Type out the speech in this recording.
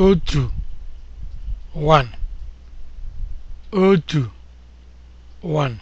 otu 1